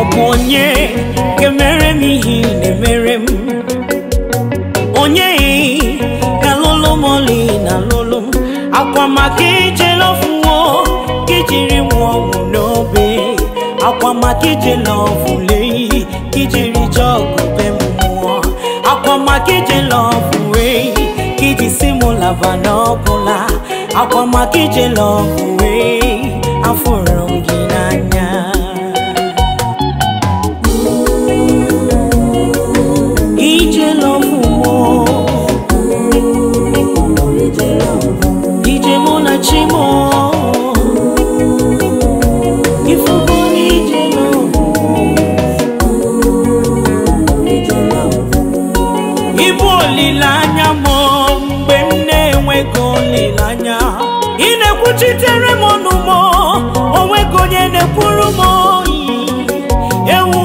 ọ bụ onye ga-emere m ihe na-emere m onye ga-alụlụ m oli na alụlụ m akwa maka ijela ọfụwo ka ijiri nwa ọgwụ n'obe akwa maka ijela ọfụle iyi ka ijiri jọgụ m mmụọ akwa maka ijela ọfụwe ka iji si m lava n'ọbụla akwa maka ijela ọfụwe afụrụ na chimo ịbụ olileanya m mgbe na-enweghị olileanya ị na-ekwuchitere m ọnụ onweghị onye na-ekwuru ewu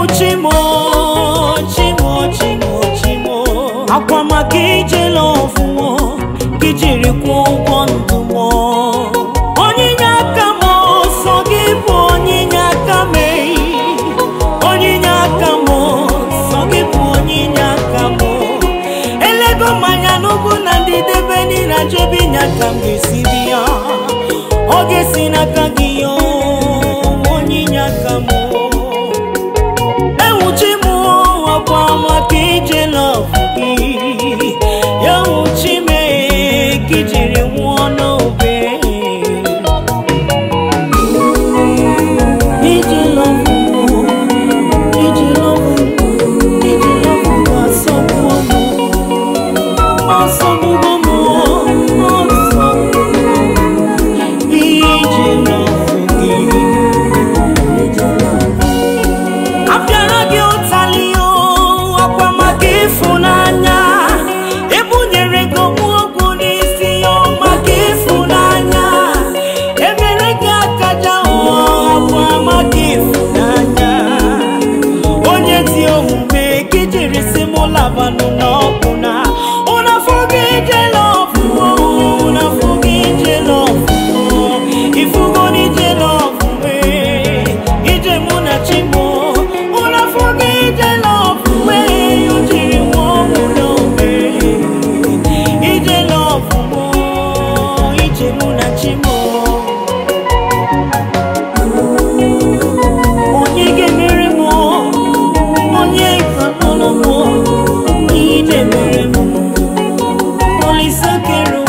akwa maka ijele ọfụma gị jiri kwụọ ụgwọ ndụ ya n'ugwu na ndị debe niile ajọbe inye aka m ga-esi dị ya oge si esi n'aka gị kere